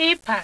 kịpa